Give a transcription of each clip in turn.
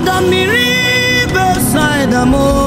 Ada the beside the moon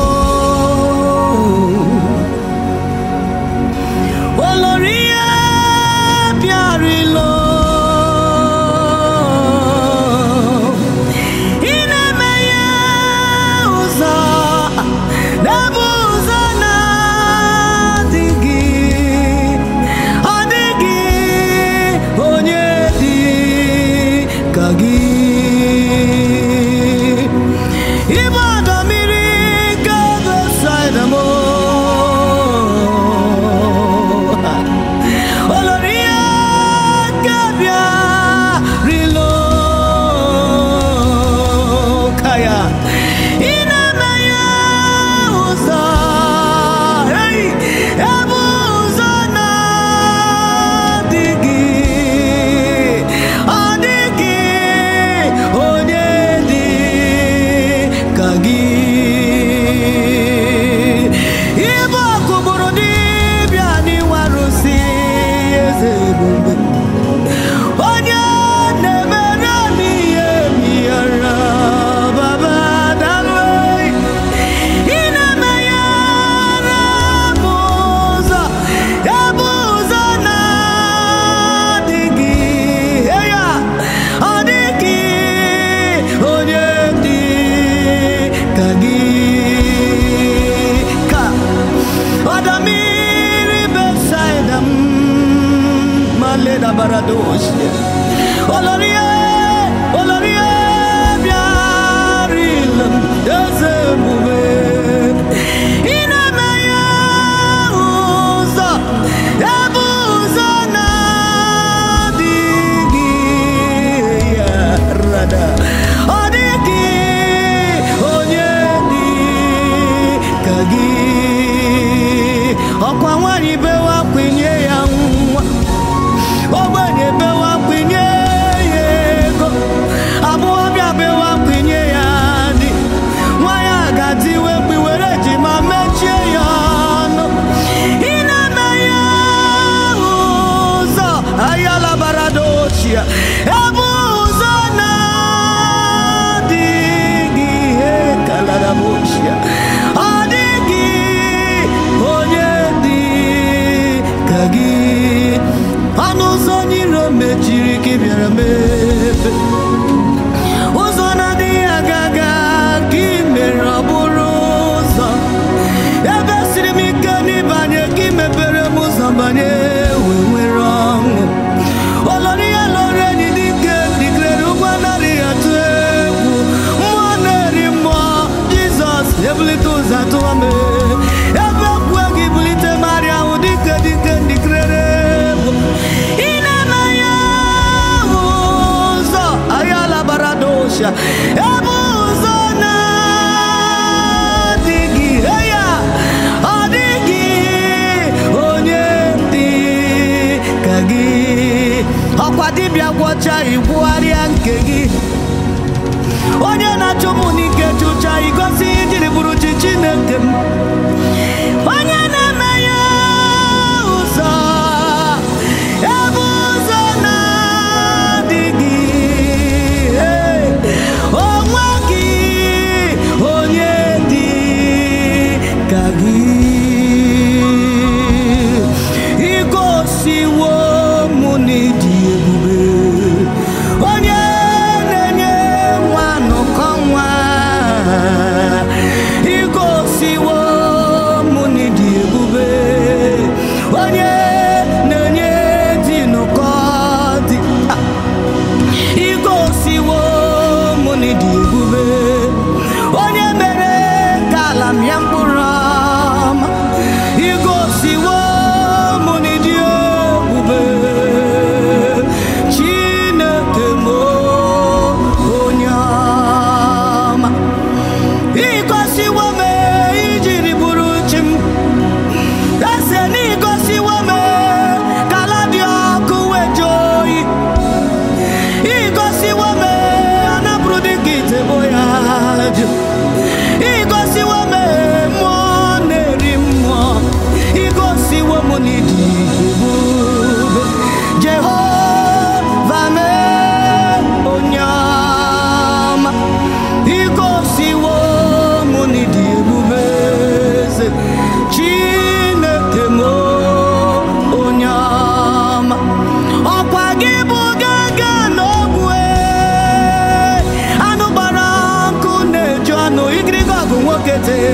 maisha hebu zona digi heya odigi onye dị ka gị dibịa gwọcha igbugharịa nke gị yang purna que te,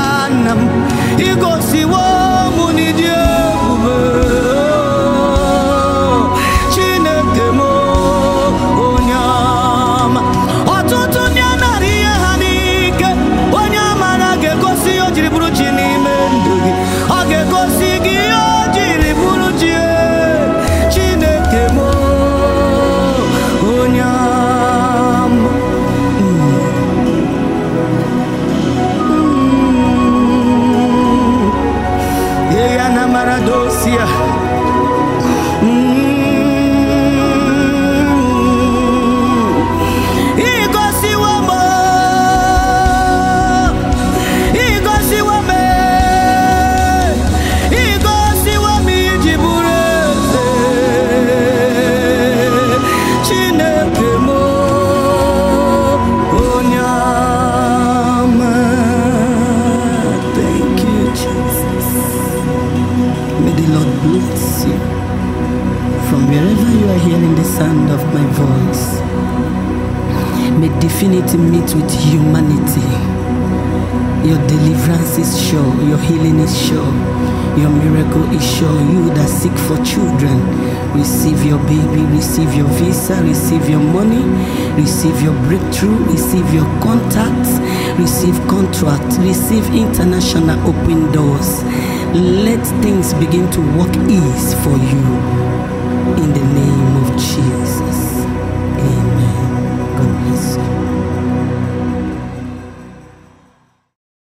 see what to meet with humanity. Your deliverance is sure, your healing is sure, your miracle is sure. You that seek for children, receive your baby, receive your visa, receive your money, receive your breakthrough, receive your contacts, receive contracts, receive international open doors. Let things begin to work ease for you in the name of Jesus.